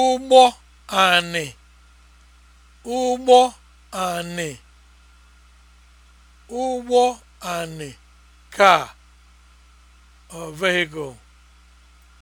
ụgbọ anị ụgbọ anị ụgbọ anị ka or vehicle